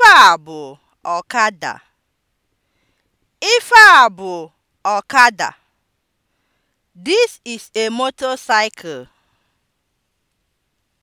Ife a bụ ọkada. Ife ọkada. This is a motorcycle.